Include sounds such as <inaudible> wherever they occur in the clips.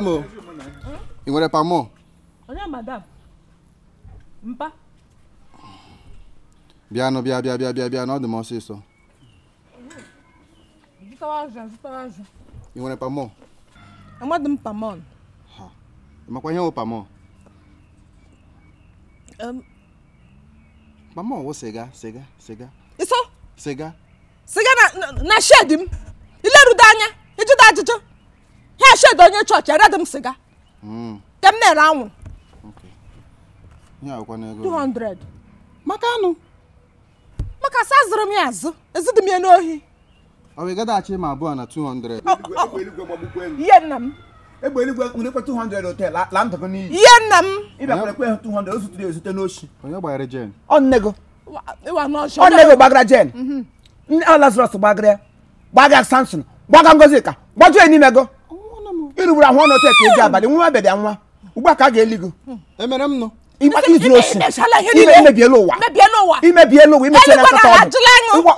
madam o ị nwere pamọ onye madam mpa bịanụ biabia biabia bịa ọ dị m ọsịsọ ị nwere pamọ amadị m pamọn makwa ihe wụ pamọ pamọ wụ sịga sịga sịga sịga na shed anya ịjụta ha shedo onye chọọchị eredi m sịga nke na-ere anwụrụ 200 maka anụ maka sa zụrụ m ya azụ ezidị m ya n'ohi ọ ma abụọ na 200 ihe nna m egbe ihe nna m 200 onye gbara jen ọnnego ọnnego gbagara jen mhm. nne alazarọs gbagara gbaga gbaga ngozika gbajuo ịrụgburu ahụ ọnụ teka eji abalị nwa abịa bịa nwa ugbua ka a ga-eli gị emere m nụ ịzụrụ osi ime emebiela ụwa imebiela ụwa imecha na nkata ọdụ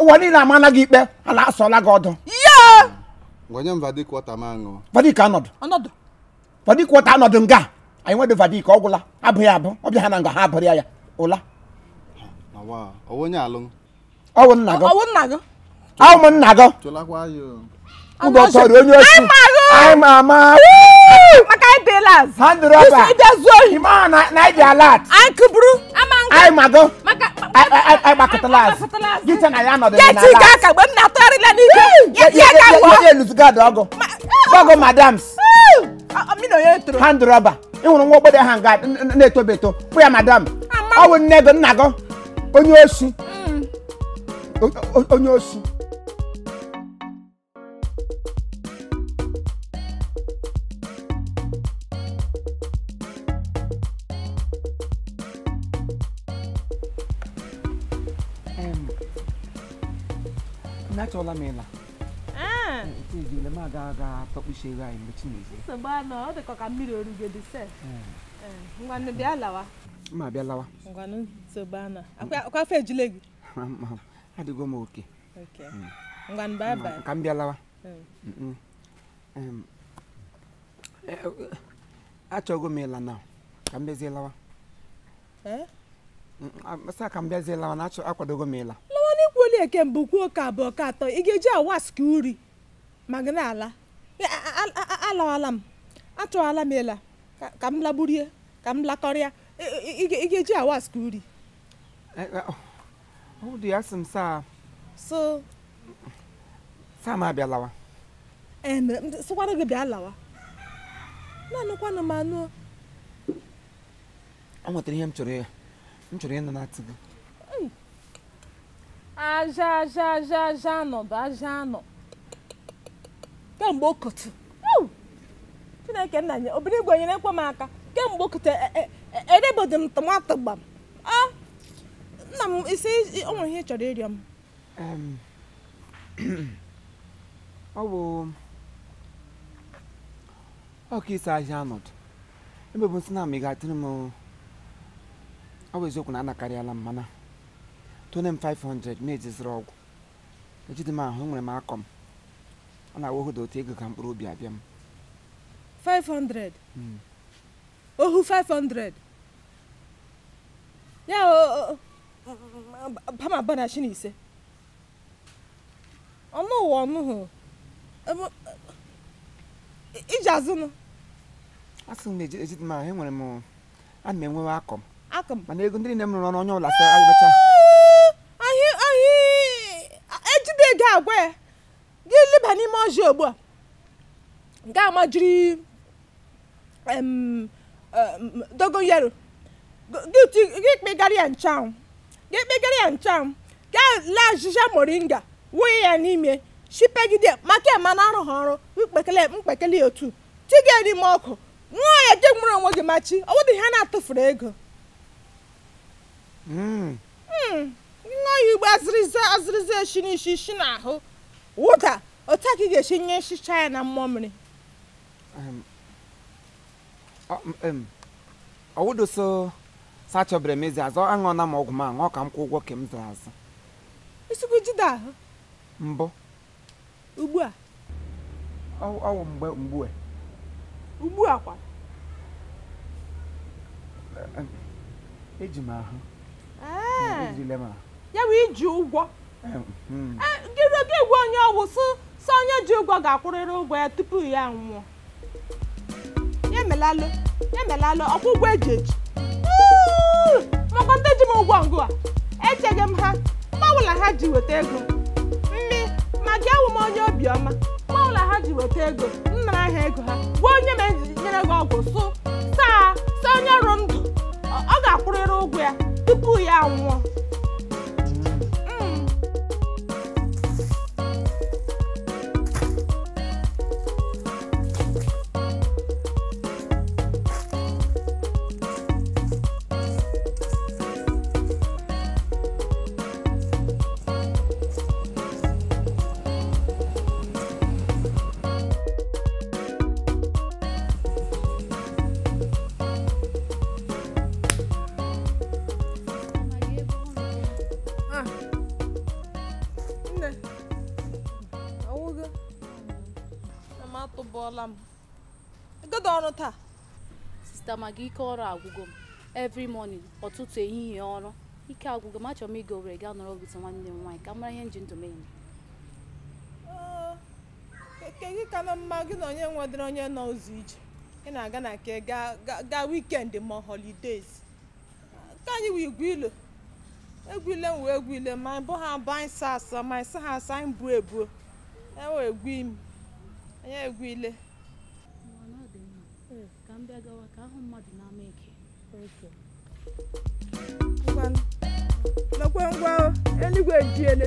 ụwa niile amana gị ikpe ala asọla gị ọdụ vadik anọdụ vadik wọta anọdụ nga anyị nwedị vadik ọ gwụla abụghị abụ ọbịa ha na nga ha abụrịa ya ụla ọwụ nna gị ahụ nna gị Ugotori onye osi. I'm Ama. Makai Pillars. Hand rubber. You see the zone. Ima na na ibi alert. Anku buru. Ama anku. I'm Ago. Maka. I I I Bakatalas. Gita na ya nọdụ na alert. Yeti ga ka gbe na tori la ni. Yeti ga gbo. Yeti eluzu ga dogo. Dogo madams. Mi no yetro. Hand rubber. Ị hụrụ nwa ogbede ha nga na-etobe eto. Pụ ya madam. Ọ bụ nne gị nna gị. Onye mm. osi. Onye osi. achọla m ịla ejile m aga aga anyị mgbe chinezie nsogbu anọ ọ dịkọ ka mmiri oru dị sef ngwanụ bịa lawa ma bịa lawa ngwanụ nsogbu anọ akwa afọ ejule gị adịgo m oke ngwanụ bye bye ka m bịa lawa achọgo m ịla na ka m bịazie lawa sa ka m bịazie lawa na akwadogo m ịla kwuola eke mbụ kwuo ka abụọ ka atọ ị ga-eji awask uri ma gị na-ala alawala m atụala m ela ka m lagburie ka m lakọrịa ị ga-eji awask uri so sama abịa lawa e, sịkwara gị bịa lawa na-anụkwanụ m anụ o nwetara ihe m chọrọ ya m chọrọ ịnụ na ati aja aja aja aja bụ aja anọ kemgbe okotu chineke nna nye obere igwe nyere ekwe m aka kemgbe okotu edebodi e, e, m tomato gbam a nna m isi o nwere ihe chọrọ ịrịọ m <clears throat> ọ bụ ọka isi aja anọdụ ebe bụ nsị na m ị ga-atịrị m ọ bụ eziokwu na anakarịala m mana tone m 500 ọgwụ ejide m ahụ enwere m akọ ọ na-awa dị otu ego ka mkpụrụ obi abịa m 500 ohu 500 ya pama bana shi n'ise, ọnụ ụwa ọnụ hụ iji azụnụ asị m ejide m ahụ enwere m ana m enwewe akọ m mana ego ndị nne m rụrụ ọrụ onye ọla sa na-agwa ya gị leba n'ime ọjị ugbu a ga amajiri dogoyaro gị kpegara ya nchanwụ gị kpegara ya nchanwụ ga lee ajịja moringa wụnye ya n'ime chipegide maka ema na arụghị ọrụ mkpekele mkpekele otu tiga n'ime ọkụ nwụọ ya je nwere onwe gị machi ọ bụdị ha na-atụfuru ego hmm. Hmm. nwa ya ugbo azịrịza azịrịza eshi n'isi ishi n'ahụ wụda otu a ị ga-esi nye nchicha ya na mmụọ mmiri ọwụdoso sachọbere m ezi azụ aṅụọna m ọgwụ m aṅụọ ka m kwụ ụgwọ ka m zụrụ azụ isikwu jide ahụ mbụ ugbu a ọwụ mgbe mgbu ugbu a kwa eji m ahụ ejile m ahụ ya bụ iji ụgwọ ehm, hmm. e, gị gwa onye ọgwụ sị sọ onye ji ụgwọ ga-akwụrịrị ụgwọ ya tupu ya nwụọ ya melalụ ya melalụ ụgwọ e eji eji ndị ji m ụgwọ ngụ a echeghị m ha mgbanwela ha ji weta ego mmi ma gị awụ m onye obiọma mgbanwela ha ji weta ego nnara ahịa ego ha gwa onye ma ejinyere gị ọgwụ sụ saa saa onye rụ ndụ ọ ga-akwụrịrị ụgwọ ya tupu ya nwụọ ọdịda maka ike ọrụ agwụgo m every morning ọtụtụ ehihie ọrụ ike agwụgo m achọrọ m ịga Owerri gaa nọrọ bute nwanne m nwaanyị ka mara ihe nji ji ndụ m eme oh, gị ka na mma gị na onye nwedịrị onye nọ ụzọ ije ị na-aga na nke gaa wikendi ma holidays nke anyị wụ igwe ilo egwu ile m wee egwu ile ma bụ ha abụ anyị sa asa ma anyị sa ha asa anyị buo ebuo ewe egwu imi anyị egwu ile ka m bịa gawa ahụ mmadụ n'ama eke lekwe ngwa eluigwe ejiele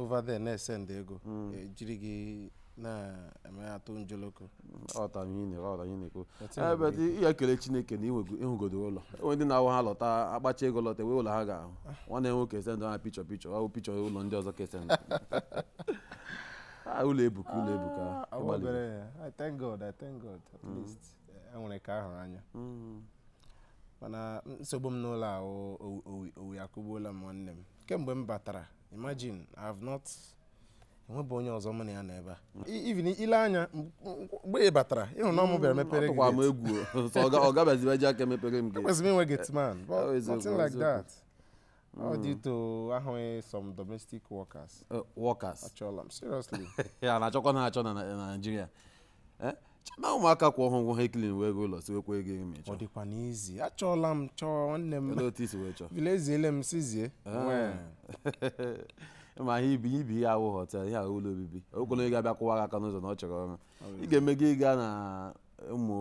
over there na-esend ego hmm. ejiri eh, gị na-emeatụ njoloko ebe dị ya kele chineke na ịhụgodo ụlọ enwe ndị na-awụ ha lọta akpacha ego lọta e wee ụlọ ha ga-ahụ ah. nwanne enwe nwoke esendụ ha pichọ pichọ ọ pichọ ụlọ ndị ọzọ kesendụ ah, ụlọ ebuka ụlọ ebuka ah, I thank God I thank God at hmm. least enwere ka ahụrụ anya hmm. mana nsogbu m n'ụlọ ahụ owi akụgbuola m nwanne m kemgbe m batara imagine i have not enwebụ onye ọzọ mụ na ya nọ ebe a even ile anya mgbe ị batara ịhụ na ọmụ bịara mepere gị gate egwu <laughs> ọ gabazibe ji aka mepere m gị kwesịrị inwe get man but nothing like that all mm. dị to ahụghị e some domestic workers uh, workers achọla m seriously <laughs> Ya na-achọkwa na-achọ na Nigeria eh? chema ụmụaka kwụ ọhụụ ngwọ ha ekilin wee gị ụlọ siwekwa ego ego mechaa ọ dịkwa n'izi achọọla m chọọ nwanne m vileziele m sizie ah. <laughs> ma ha ibi ibi ihe awụ họtel ihe ahụ ụlọ obibi okwele ego abịa kwụwa gị aka n'ụzọ na ọ chọrọ ọrụ ị ga eme gị ịga na ụmụ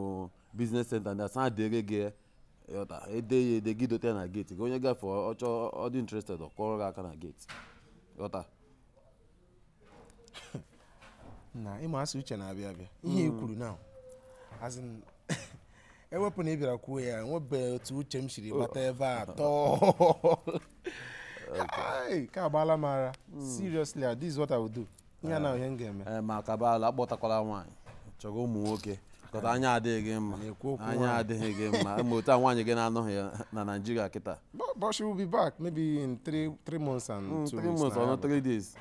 biznes senta ndị asaa dere gị ede ya ede gị dote na geeti gị onye gafe ọchọ ọ dị ọ kwụrụ gị aka na geeti ghọta <laughs> na ịmụ asị uche na-abịa abịa ihe e hmm. kwuru na azin <laughs> ewepụ na ị bịara kwuo ya nwebe otu uche m siri gbata oh. ebe a <laughs> tọọ ka agbaala m ara hmm. seriously ah, this is what I will do ihe eh. na ihe m ga-eme eh, ma kabala akpọtakwala nwaanyị chọrọ ụmụ nwoke kọta ah. anya adịghị gị mma anya adịghị gị mma <laughs> ma otu a nwaanyị gị na-anọghị na Naịjirịa kịta but she will be back maybe in three three months and hmm, two months or three days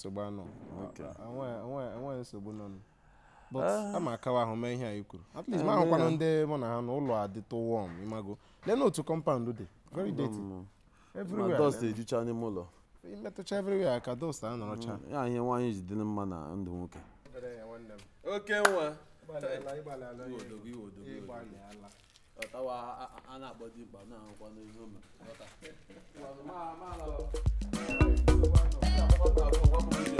nsogbu anọ enweghị nsogbu nọ but ama ah. akawa ahụ mee ihe anyị kwuru at least eh, ma ahụkwana ndị mụ na ha na ụlọ adịtụ wọm ịmago lee otu kọmpaụndụ dị very dirty mm, mm, mm. everywhere dust n'ime ụlọ imetụcha everywhere ka dust a nọrọcha ya ihe nwaanyị ji dị mma na ndụ nwoke oke nwa a Hey.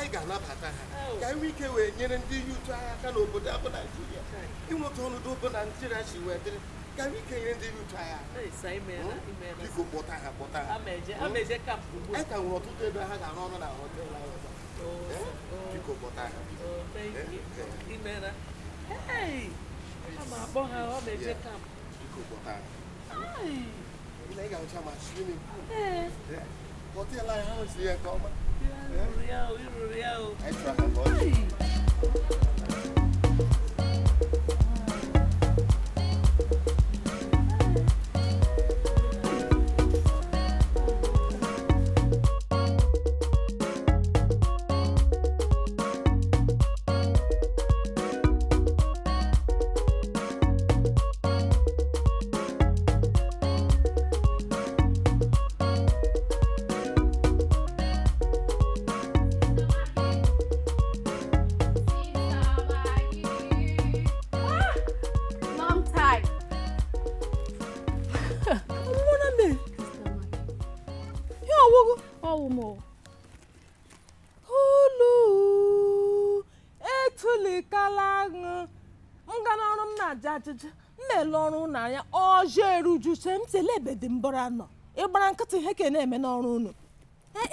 anyị ga-anabata ha ka ike wee nyere ndị ihe aka n'obodo abụ ịnweta ọnọdụ obo na naijiria si wee dịrị ka anyị ike nyere ndị ihe utu hmm? biko kpọta ha kpọta ha hmm? anyị ka nwere ọtụtụ ebe ha ga-arụ ọrụ na Real, real, real. ebe dị mbọrọ anọ ịgbara nkịtị ihe ka na-eme n'ọrụ unu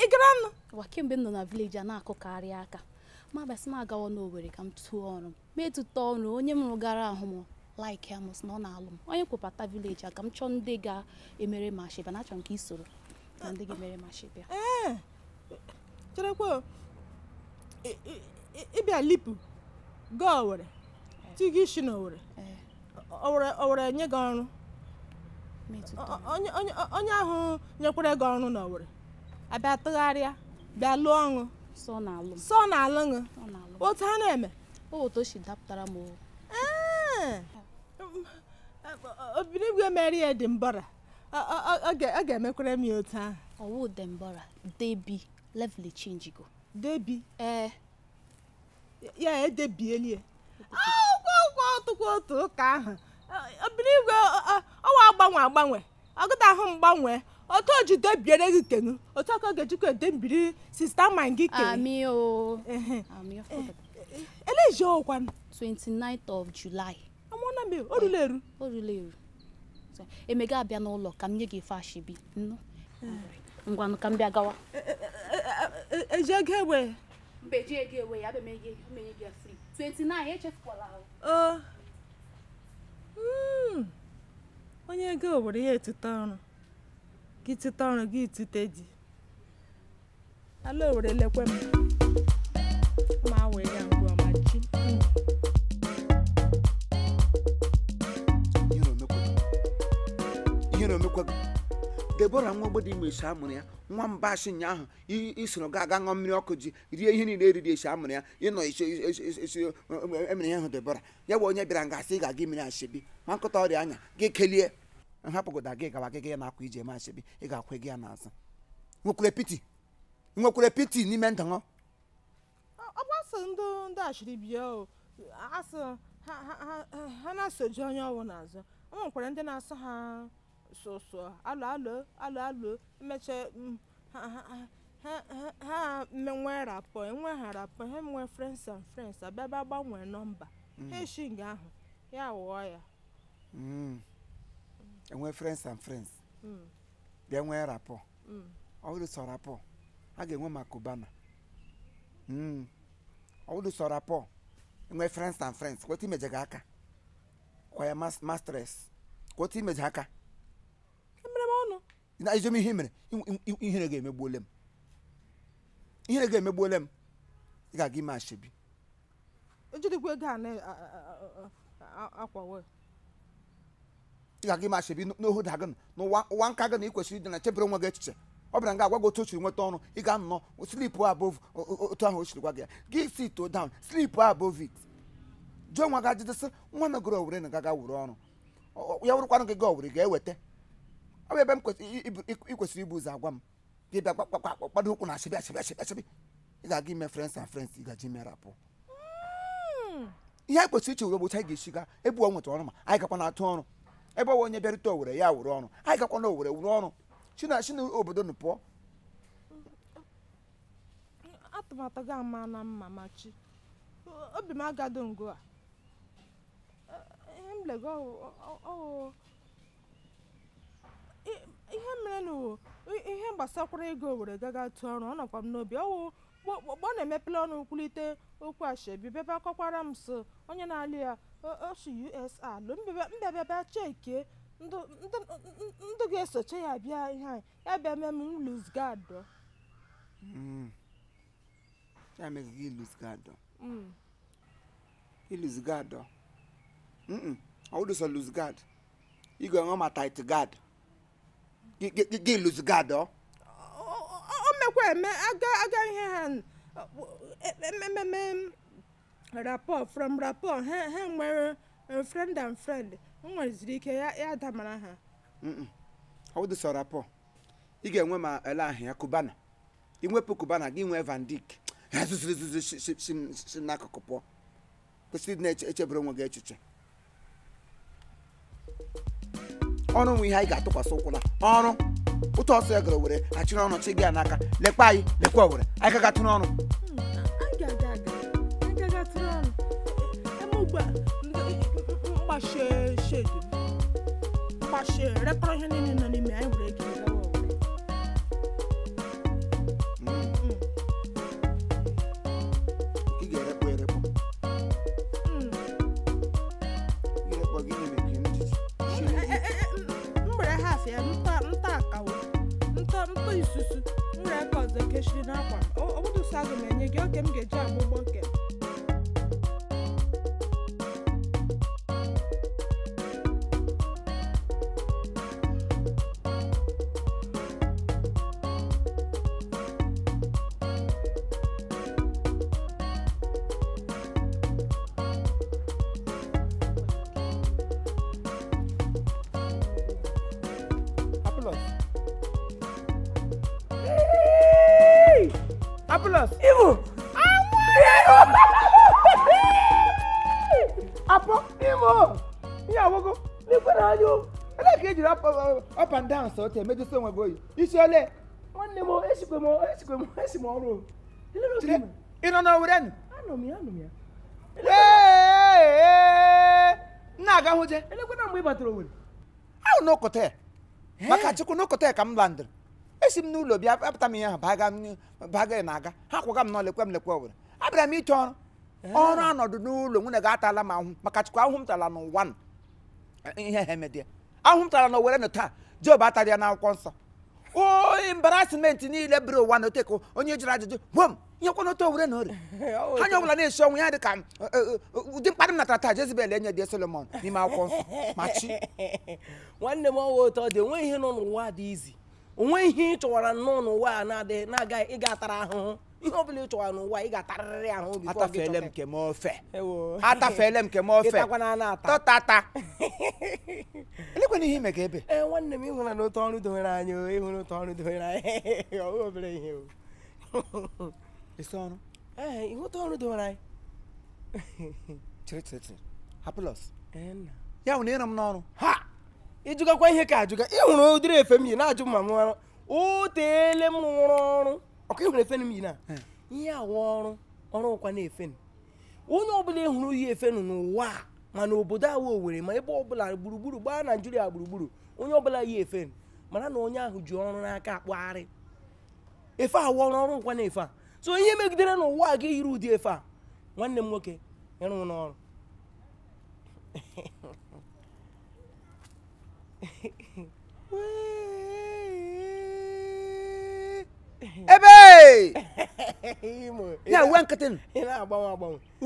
ị gara nụ ụwa m nọ na vileji a na-akụkarị aka ma basị m agawa n'owere ka m tụọ ọrụ ma etụta ọrụ onye m rụgara ahụ m laik ya na ọ na-alụ m onye kwepata vileji a ka m chọọ ndị ga-emere m ashịba na achọ m ka i soro na ndị ga-emere m ashịba cherekwa ịbịa lipu gaa Owerri tigị isi n'Owerri Owerri nye gị ọrụ onye ahụ nyekwara gị ọrụ n'Owerri abịa tụgharịa bịa lụọ ọṅụ sọ na alụ ṅụ, otu ha na-eme obinigwe mere ya dị mbara, ọ ga-emekwara m ya otu ahụ ọwụ dị mbọra debi level change go debi ee ya edebielie akwụkwọ ọtụkwa otu ụka ahụ obinigwe ọ ọnwa agbanwe agbanwe ọgụta ahụ mgbanwe otu ojide biere gị kenu otu aka ga-ejikwa ede mbiri sista ma gị eleji ọkwan 29th of July amụna m orule eru orule eru emega abịa n'ụlọ ka m nye gị ife ashibi ngwanụ ka m bịa gawa eh, eh, eh, eji ego ewe mba eji ego ewe ya abịa menye gị free 29 echefukwala ahụ oh. hmm. onye ego obodo ya etute ọrụ gị tute ọrụ gị tute di ala owere lekwe m debora nwa ogbodi ime esi amụrụ ya nwa mba asị ụnyaahụ isoro ga aga ṅụọ mmiri ọkụ ji rie ihe niile eriri esi amụrụ ya ịnọ esi emere e ihe ahụ debora ya bụ onye bịara nga asị ị ga-aga imere ashebi ma nkụta ọrịa anya gị kelie nhapụgoda gị gawa gị gị na-akwa iji eme ashebi ị ga-akwe gị ya n'azụ nwekwere piti nwekwere piti n'ime ndụ ọ ndị ha na-asoji onye ọwụ n'azụ o nwekwara ndị na ha sọsọ alụ alụ alụ alụ emecha mm, ha menwe rapọ enwe ha rapọ ha enwe e friends and friends abịa gbanwee nọmba mm. ha eshi nga ahụ ya wụọ ya enwe mm. friends and friends bịa nwee rapọ ọ bụrụ sọ rapọ a ga-enwe maka ụbana ọ bụrụ sọ rapọ enwe friends and friends kweta imeje gị aka kwa ya mastress kweta imeje aka na ezom ihe mere ihere ga-emegbuole m ihere ga-emegbuole m ị ga-aga ime ashebi ị ga-aga ime ashebi n'ohu da gị n'ụwa nka gị na ị kwesịrị ịdị na chebere onwe gị echiche ọ bịara nga agwa gị otu o siri nweta ọrụ ị ga-anọ slip above otu ahụ o siri gwa gị ya gị sit down slip above it jụọ nwa gị ajụjụ sị nwa megoro owere na gaga were ọrụ ya wụrụkwanụ gị ga owere ga-eweta ọ bụ ebe m kwesịrị ibu ụzọ agwa m gị bịa gbakpakpakpado ụkwụ na asịbị asịbị asịbị asịbị ị ga-aga ime frens na frens ị gaji ime rapụ hmm. ihe anyị kwesịrị iche were bụ anyị ga-esi ebu ọ nweta ọrụ ma anyị gakwa na-atụ ọrụ ebe ọwa onye bịarute owere ya were ọrụ anyị gakwa owere wụrụ ọrụ si na obodo pụọ na mma ihe mere na ihe gbasakwara ego e were gaga tụọ ọrụ ọ nọkwa m n'obi ọwụ ọ na-emepele ọnụ kwulite okwu ashebi bebe akọkwara m so onye na-alụ ya osu usa lụ mbebebe chekie ndụ ga-esochi ya bịa ihe anyị ya bịa mee m luzgado hmm. ya mere gị luzgado hmm. iluzgado hmm, ọ wụdụsọ luzgad igwe nwe ma tit gad gị gị gad o mekwa eme aga aga ihe ha emememe from rapọt ha nwere e, friend and friend nweziri ike ya damara ha ọ rapọ rapport ị ga-enwe ma ele ahịa kubana ị iwepụ kubana gị nwee van dik ha zụziri zụzi si n'akụkụ pụọ kwesịrị ịdị na-echebere onwe gị echiche ọrụ nwe ihe anyị ga-atụkwasị ụkwụ na ọrụ ụtọ ọsọ ya e gara were achịrị ọnụ chi gị ya n'aka lekwa anyị lekwa owere anyị gaga tụrụ ọnụ mgbashe hmm, ihe niile nọ n'ime anyị were otu oyi isi ole nwanne m m esikwe m esi m ọrụ ị nọ n'owere nụ anọ m ya anọ m ya na-aga hụje mgbe ị batara owere ahụ n'ụkọta ya maka chukwu n'ụkọta ya ka m landịrị esi m n'ụlọ bịa apụta m ihe baga na-aga ha kwaga m n'ọlekwe m lekwe owere abịara m ịchọ ọrụ ọrụ anọdụ n'ụlọ nwunye gị atala m ahụ maka chukwu ahụ m tara n'ụwa ihe ha ahụ m tara n'owere taa job atarịa na akwụkwọ nsọ o oh, embarrassment niile bụrụ ụwa na oteko onye jụrụ ajụjụ gwom nyekwana otu owere na ori anya ọbụla na-esi ọnwụ ya dị ka ụdị mkparị m natara taa Jezebel enye dị Solomon n'ime akwụkwọ nsọ ma chi nwanne m ọwa otu ọ dị onwe ihe nọ n'ụwa dị izi onwe ihe ị chọwara nnọọ n'ụwa a na-adịghị na-agaghị ịga atara ahụhụ ihe ọbụla ị chọwara n'ụwa ị ga-atarịrị ahụ obi atafele m kem ofe atafele m kem ofe tọtata elekwana ihe ime ka ebe ee nwanne m Eu na otu ọrụ dowere anya ịhụra otu ọrụ dowere anya ọhụ obere ihe esi ọrụ ee ihe otu ọrụ dowere não chịrịchịrịchịrị hapụlọs ya hụ na ịrọ m n'ọrụ ha ịjụgakwa ihe ka ajụga ịhụrụ ụdịrị efe m yi na-ajụ ma m ọrụ o teele m rụrụ ọrụ ọkụ ịhụrụ efe m yi na ihe awa ọrụ ọrụ ụkwa na-efe m onye ọbụla ịhụrụ yi efe n'ụwa ma mana obodo awa owere ma ebe ọbụla gburugburu gbaa naijiria gburugburu onye ọbụla yi efe mara mana na onye ahụ ji ọrụ n'aka akpụgharị efe awa ọrụ ọrụ nkwa na-efe a so ihe megidere n'ụwa a ga yiri ụdị efe a nwanne m nwoke ịrụ n'ọrụ Wee ebe ya uwe nkịtị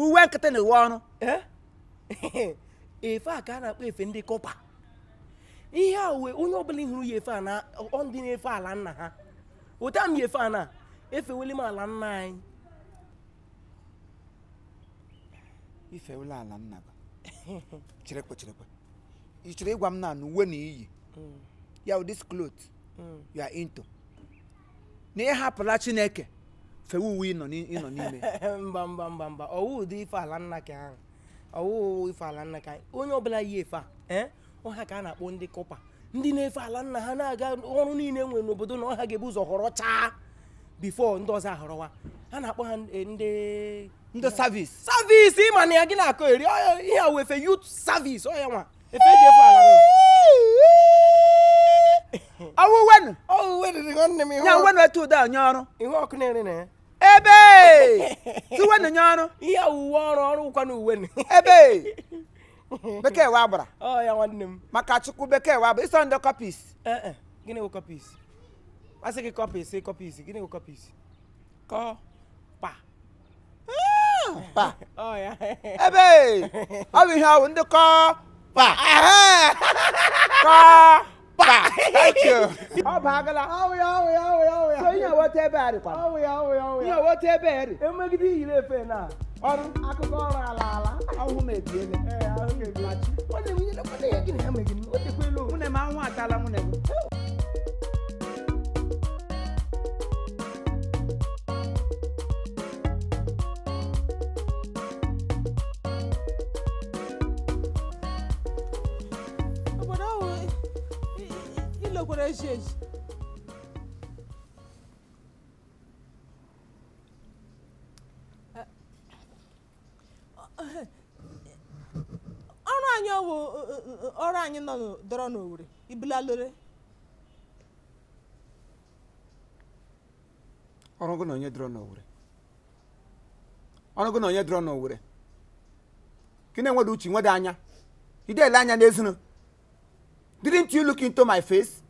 uwe nkịtị na uwe ọrụ efe a ka a na-akpọ efe ndị kọpa ihe a uwe onye ọbụla hụrụ ya efe a na ndị na-efe ala nna ha ụta m efe a na efe m ala nna anyị ifewele ala nna ba <laughs> cherekwe cherekwe ị chọrọ na ịhapụla chineke fewe uwe ịnọ n'ime <laughs> mba mba mba mba ọwụ ụdị ife ala nna ka ahụ ọwụ ife ala nna ka onye ọbụla yi efe a eh? ọha ka a na-akpọ ndị kọpa ndị na-efe ala nna ha na-aga ọrụ niile nwere n'obodo na ọha ga-ebu ụzọ họrọ chaa bifo ndị ọzọ ahọrọwa ha na-akpọ ha ndị ndị savis savis ịma na ya gị na-akọ eri ihe a efe yut savis ọ ya nwa efe eji efe ala ọwụ <laughs> wenu nya wenu etu ụda nye ọrụ ihe ọkụ na-ere na ya ebe <laughs> tiwenu nye ọrụ ihe owuwe ọrụ ọrụ ụkwa na uwe ebe <laughs> bekee wa gbara ọ ya nwanne m maka chukwu bekee wa bụ ịsọ ndị kọpis eh, eh. gịnị bụ kọpis asị gị kọpis kọpis gịnị bụ kọpis kọ pa ah! pa ebe ọ bụ ihe ọ ndị kọ pa kọ mba ọ bụ agala ihe weta ebe ihe weta ebe eri emegide iyiri efe na ọrụ akụkọ ọrụ ala ala ahụ m anwụ atala para gente. ọrụ anyị ọwụ ọrụ anyị nọ dọrọ n'Owerri ibulalore ọrụ gị na onye dọrọ n'Owerri ọrụ gị na onye dọrọ n'Owerri ka ị na uche nweda anya ị dele anya n'ezinụ didn't you look into my face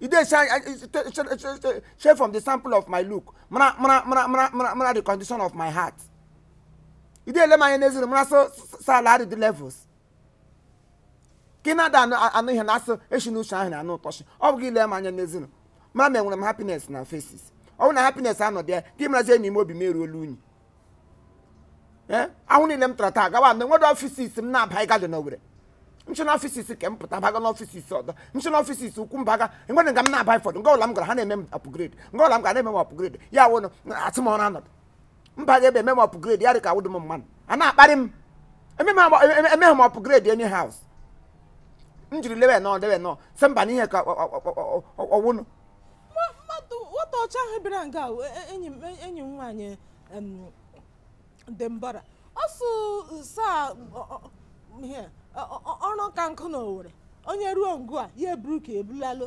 e dey shine share from the sample of my look mara mara mara mara mara the condition of my heart e dey ele m anya n'ezinụlọ mara so sa ala dị the levels ka ị na-ada anụ ihe na-asụ eshi na uche ahụ na anụ ụtọchi ọ bụghị ile m anya n'ezuru mara ma enwere m happiness na faces ọ bụrụ na happiness anọdị ya ka ị marazie enyi m obi m eruola unyi eh? ahụ niile m tara taa gawa na enwere ọfisis m na-abaghị gadị n'owere nchena ọfịs isi ke m pụta baga n'ọfịs isi ọzọ nchena ọfịs isi ukwu mbaga enwere nga m na-aba ifọdụ nga ụla m gara ha na-eme m apụgredi nga ụla m gara na-eme m apụgredi ya wụnụ asị m ọrụ anọdụ mba ga ebe eme m apụgredi ya dị ka awụdị m mmanụ a na-akparị m emeghị m apụgredi enyi haus m jiri lewe nọ lewe nọ sị mba n'ihe ka ọwụnụ nwata ọcha ahụ bịara enyi m enyi dị mbara ọsụ saa ọrụ ka nkụ na Owerri onye ruo ngụ a ya eburu ka ebulalụ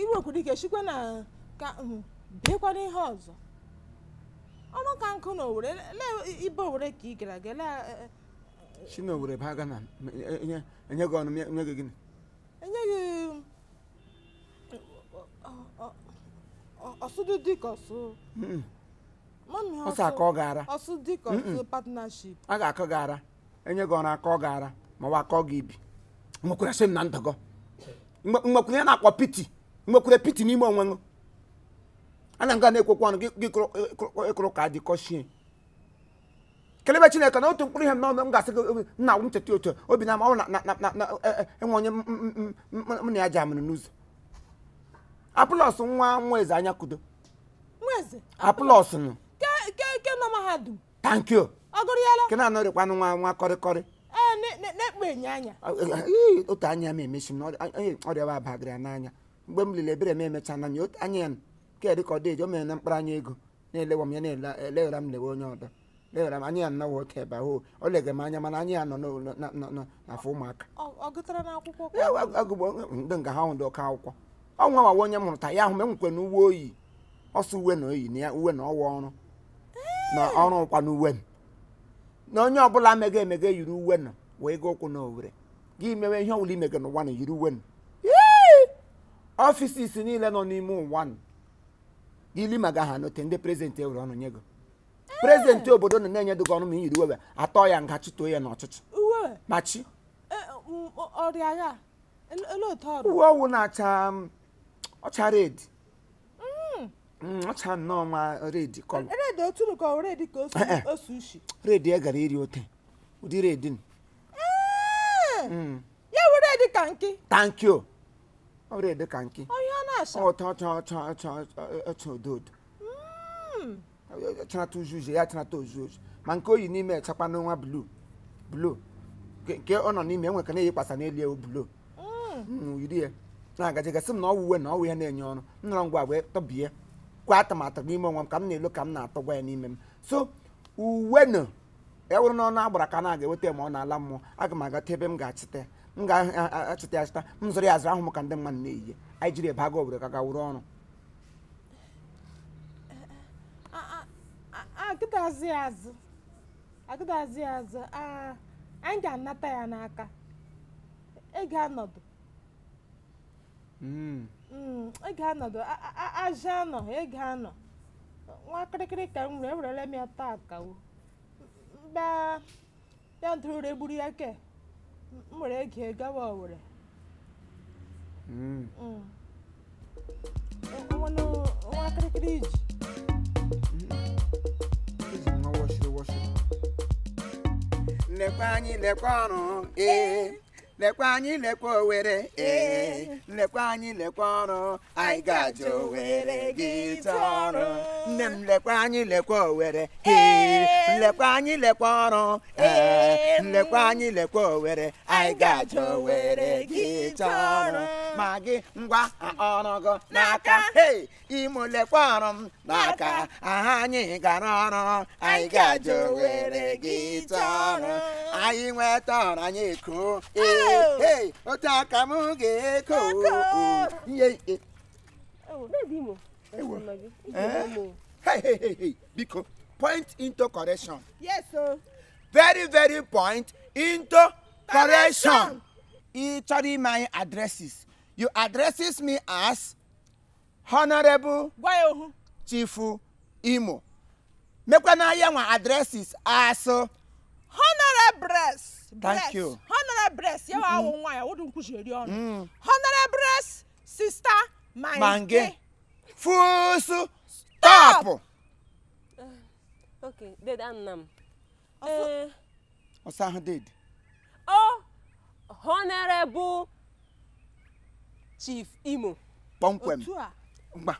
iwekwurike chikwa na ka bịakwana ihe ọzọ ọrụ ka nkụ na Owerri ibe Owere ka ị gara aga si na Owerri baa Ghana enye gị ọnụ enye gị gịnị enye gị ọsụdụ dịka ọsụ ọsụ aka ọ gara ọsụ dịka ọsụ partnership a ga-akọ gara enye gị ọrụ akọ ọ gara ma wa akọ gị ibi nwekwere sị m na ndọgọ nwekwere ya na-akpọ piti nwekwere piti n'ime onwe ṅụ ana nga na-ekwekwa ọnụ gị ịkụrụ e, e, ka dị shie kelebe chineke na otu mkpụrụ ihe m n'ọnụ m ga-asị gị nna agwụ ncheta otu obi na na e, enwe onye m na ya ji amụrụ n'ụzọ apụlọs nwa nwa eze anya kudo apụlọs nụ tanki o ke na-anọrịkwanụ nwa nwa kọrịkọrị anya otu anya m emechi m na ọrịawa abagara n'anya mgbe m lere ebere m emecha na ya anya ya nke dị ka ọ dị eji o mere na mkpụrụ anya ego na-elewa m ya na-eleghara e, m lewe onye ọdọ leghara m anya ya nnọọ oke ebe ahụ o legara m anya mana anya ya nọ n'afọ ụmụaka agụgbo ndị nga ha nwụdị ọka akwụkwọ ọnwa nwawa onye mụrụta ya ahụ m enwekwe na uwe oyi ọsọ uwe na oyi na uwe na ọwa ọrụ na ọrụ ụkwa na uwe m na onye ọbụla meghe emeghe yiri uwe nọ wee gaa ụkwụ na Owerri gị mewe ihe ọbụla ime gị n'ụwa na yiri uwe ọfisis niile nọ n'ime ụwa gị lima ga ha note ndị prezidenti ewere ọnụ nye gị prezidenti obodo nọ na-enye dịgị ọnụ ma yiri uwe atọ ya nga chụtoo ya n'ọchịchị machi uwe ọwụ na-acha ọcha redi mm. mm, ọcha nnọọ nwa red kọlọ redi e gara iri ote ụdị redi redin ya were dị ka nke thank you dị ka nke ya chanata ozu ma nke oyi n'ime echakwa n'ọnwa blu blu nke ọ nọ n'ime enwe ka na eyi kpasa n'elu ewu blu yiri ya na-agaji gasị m na ọwụ uwe na ọwụ ya na-enye ọrụ m nọrọ ngwa wee tọbie kwa atụmatụ n'ime onwe m ka m na-elu ka m na-atọ gwa ya n'ime m so uwe nọ e wụrụ n'ọnụ agbara ka na-aga eweta ma ọ na-ala mmụọ aga m agata ebe m ga-achịta m ga-achịta m zụrụ ya azụrụ ahụ ka ndị mmadụ na eyi anyị jiri ebe aga obodo ka ga wụrụ ọrụ agịdazi azụ anyị ga-anata ya n'aka anọ anọ nwa kịrịkịrị ka m e ya taa bịa bịa ntorore gburu ya ke m were gee gawa Owerri nwa kirikiri iji lekwa anyị lekwa ọrụ ee lekwa anyị lekwa owere ee eh. lekwa anyị lekwa ọrụ anyị ga-aje owere gị ọrụ nne m lekwa anyị lekwa owere ee eh. lekwa anyị lekwa ọrụ ee eh. lekwa anyị lekwa owere anyị ga-aje owere gị ọrụ ma gị ngwa ọrụgo n'aka imo lekwa ọrụ m n'aka aha anyị gara ọrụ anyị ga-aje owere gị ọrụ anyị nweta ọrụ anyị eko ee ah. otaka m ga-eko biko point into correction yes sir. very very point into correction ị chọrọ ime anyị addresses you addresses me as honorable Chief imo mekwana ya nwa addresses as. Uh, honorable breast breast honorable breast yẹ wa awọn nwa ya o dun kusi eri ọnu mm. honorable sister mange fusu, stop. Uh, okay and nam. ọsàn uh, ahun dade. o oh, honorable chief imo. pọnpẹm ngba.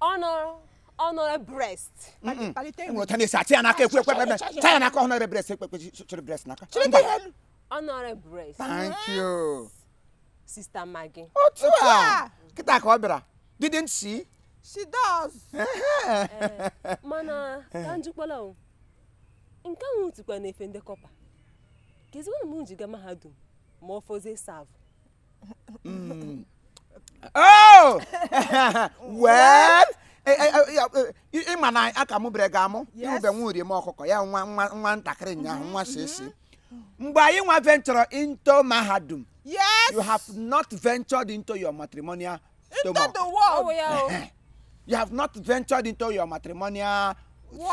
honorable honorary breast. Ngo tani sa tia naka kwe kwe kwe. Tia naka honorary breast kwe kwe chiri breast naka. Chiri ti helu. Honorary breast. Thank mm-hmm. you. Sister Maggie. Otu a. Kita ka obira. Didn't she? She does. Eh, <laughs> mana ka njukwala o. Nke ahụ tikwa na efe ndị kọpa. Kezikwara m njiga mahadum ma ọ fọzie savụ. Mm. <laughs> Oh! <laughs> well, ịma eh, eh, eh, na aka mụbere ga-amụ ịmụbe nwuri urie m ọkụkọ ya nwa nwa ntakịrị ụnyaahụ mm-hmm, nwa mm-hmm. sịsị mgbe anyị nwa venture into mahadum you have not ventured into your matrimonial stomach oh, you have not ventured into your matrimonial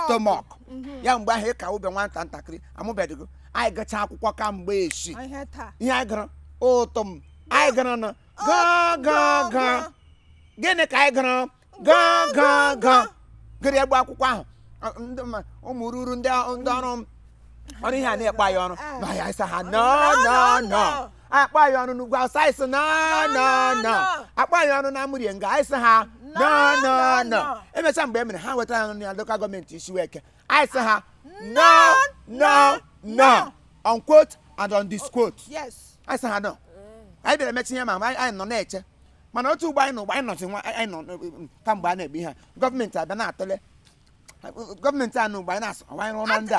stomach mm-hmm. ya mgbe ahụ ịka ụbe nwata ntakịrị amụbeghị anyị akwụkwọ kamgbe esi ihe anyị ụtụ m anyị gịnị ka anyị gaa gaa gaa gịrị egbe akwụkwọ ahụ ụmụ ruru ndị ọrụ ọrụ ihe a na-ekpe anyị ọrụ na ya eh. ha nọ akpa anyị ọnụ n'ugwu awụsa anyị sị nọ akpa anyị ọnụ na amụrie nga anyị sị ha nọ emechaa mgbe e mere ha wetara ya na lokal gọọmenti Isiweke anyị sị ha nọ nọ nọ on quote and on disquote anyị sị ha nọ mm. anyị bịara emechi ihe ma anyị nọ na-eche mana otu ugbo anyị na ụgbọ anyị nọzi nwa anyị nọ e, e, kamgbe a na-ebi ha gọọmenti abịa na-atụle gọọmenti a na anyị na-asụ ọwa anyị ndị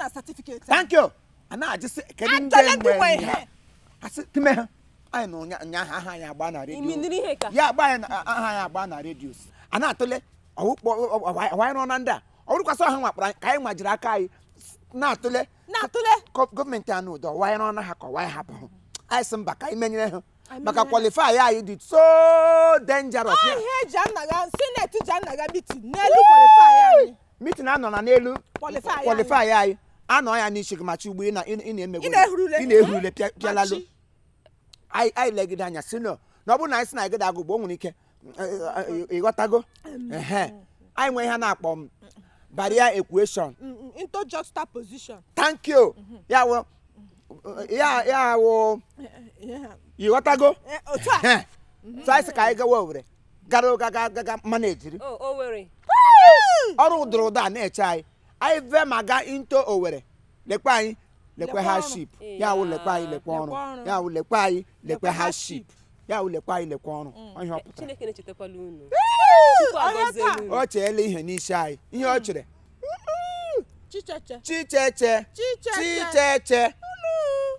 a thank you a na-ajụsị kedu ndị nwe ha asị kime ha anyị nọ ụnyaahụ aha anyị agba na redio ya agba anyị aha anyị agba na redio a na-atụle ọwa anyị ndị a ọ ọha nwakpara ka anyị nwajiri aka anyị na-atụle gọọmenti a ụdọ ọwa anyị ha ka ọwa anyị anyị sị mba ka anyị ha maka anyị dị so dangerous ihe mitin n'elu kwalifai anyị anọ na n'elu kwalifai anyị anọ ya n'isi gị machi ugbo ị na-ehurule pịalalu anyị legide anya si na ọ bụrụ na anyị si na gịda agụgbo o nwere ike ịghọtago anyị nwee ihe na-akpọ barrier equation interjustal position ya ya ya awụ ịghọtago taisi ka anyị gawa owere gara ụga gaga mmanụ ejiri ọrụ dụrụ ụda na-eche anyị anyị ve ma gaa into owere lekwe anyị lekwe ha ship eh, ya awụ lekwe anyị lekwe ọrụ ya awụ lekwe anyị lekwe ha ship ya awụ lekwe anyị lekwe ọrụ ihe ọ pụtara o cheela ihe n'isi anyị ihe o chere mm. chicheche chicheche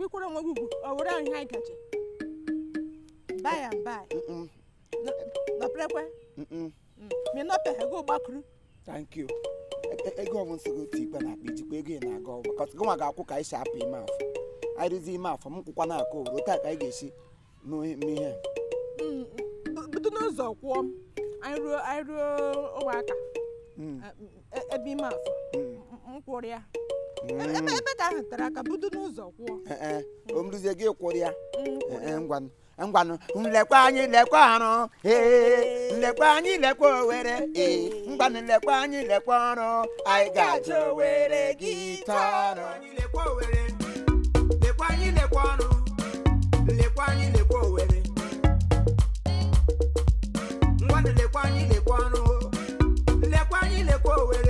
kwekwara nwa gị ugwu ọ were ahụ ihe anyị gaje by and by nọperekwe mi mm. nọpeghe gị gbakụrụ thank you e, e, ego ọmụ nsị gị otu ikpe na-akpa ijikwa ego ị na-aga ọgba kọtụ gị nwa ga-akwụ ka anyị si apụ ime afọ anyị ime afọ m kwụkwa na-akụ owuru taa ka anyị ga-esi n'ihe. ihe mm, mm. bido n'ụzọ kwụọ m anyị ruo anyị ruo ụmụaka e, ebe ime afọ m kwụrụ ya ebe ka ahụ tara n'ụzọ kwụọ eh, eh, gị kwụrụ ya mm, eh, ngwanụ nlekwa anyị lekwa arụ ee nlekwa anyị lekwa owere ee ngwanụ nlekwa anyị lekwa ọrụ anyị ga-aja were gị taa lekwa ọrụ nlekwa anyị lekwa lekwa anyị lekwa ọrụ lekwa anyị lekwa owere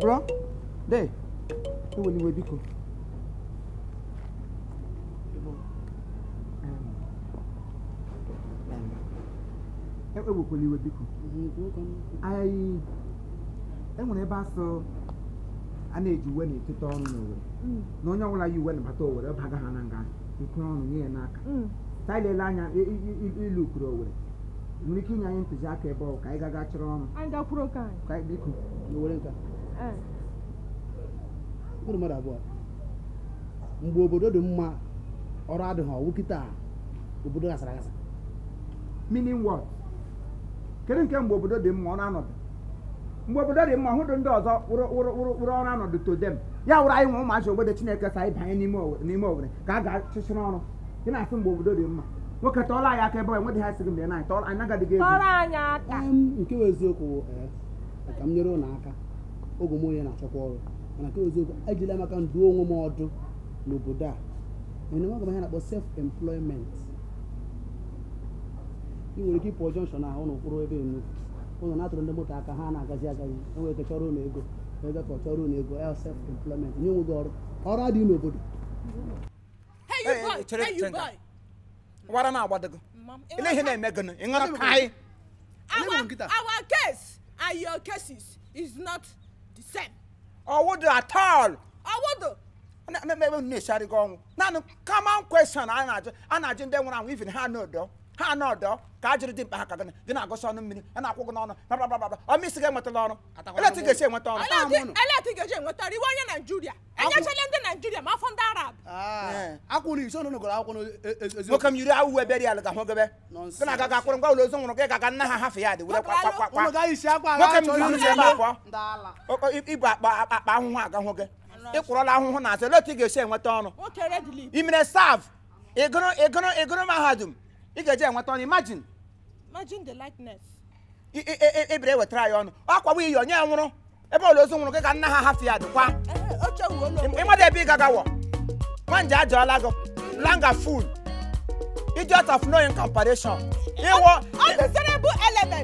bro de eweliwe biko ewekwekwala iwe biko enwere ebe asụ a na-eji uwe na-eteta ọrụ n'owere na onye ọbụla yi uwe nabata owere baga ha na nga nkwere ọnụ nye ya n'aka tailele anya ilu kwuru owere nwere ike inye anyị ntụziaka ebe ọ ka anyị gaga chọrọ ọrụ mụrụ mmadụ abụọ mgbe obodo dị mma ọrụ adịghị ọwụ kịta obodo gasara agasa meaning what kedu nke mgbe obodo dị mma ọ na-anọdụ mgbe obodo dị mma hụdụ ndị ọzọ wụrụ ọrụ anọdụ to dem ya wụrụ anyị nwe ụmụachi obodo chineke sa anyị banye n'ime owere ka a ga-achịchịrị ọrụ ị na-asị mgbe obodo dị mma nwoke tọọla anyị aka ebe enweghị ha sịrị mgbe anyị nagadịghị ego um, nke bụ eziokwu eh, ka m nyere ụlọ aka oge m onye na-achọkwa ọrụ mana nke eziokwu ejila maka nduo onwe m ọdụ n'obodo a enye nwa gamahe na-akpọ self employment ị nwere ike ịpụọ jọnshọn ahụ ụlọ ebe enu ụlọ na-atụrụ ndị moto aka ha na-agazi agazi enwere ike chọrọ ụlọ ego ego ka ọ chọrọ ụlọ ego ya self employment nye onwe gị ọrụ ọrụ adịghị n'obodo wara na agbado gị ile ihe na-eme gị ịṅụrụ ka anyị Our case and your cases is not the same. ọwụdụ at all. ọwụdụ. na-eme ebe unu na-esi arịgo ọnwụ naanị common question a na-ajụ ndị nwụrụ anwụ even ha n'odo. ha na ọdọ ka a dị mkpa ha ka gịnị gị na-agụsị ọnụ mmiri a na-akwụ gị n'ọnụ babababa ọma isi ga-enwetala ọrụ eletị ga-esi enweta ọrụ eletị ga-eji enweta ọrụ iwe onye naijiria enyechala ndị naijiria ma afọ ndị arab akwụrụ akwụkwọ na agaghị akwụrụ ngwa ụlọ nwụrụ gị nna ha hafụ ya dị ma ibu akpa ahụhụ agahụ gị ịkwụrọla ahụhụ na azụ eletị ga-esi enweta ọrụ imere sav ịgụrụ mahadum ị ga-eji enweta ọnụ imagine imagine the likeness ebere wetara ya ọnụ akwawa iyi onye nwụrụ ebe ụlọ ozu nwụrụ gị ka nna ha hafụ ya dịkwa ịmada eh, ebe ị gagawọ nwanje ajọọla gị langa ful idiot of no in comparison iwọ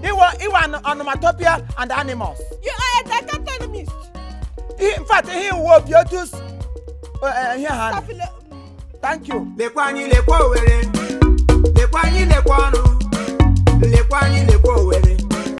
iwọ iwọ onomatopoeia and animals. you are a dichotomist. in fact ihe iwu obi otu ihe ha. thank you. lekwa anyị lekwa Owerri. lekwa anyị lekwa ọnụ lekwa anyị lekwa owere.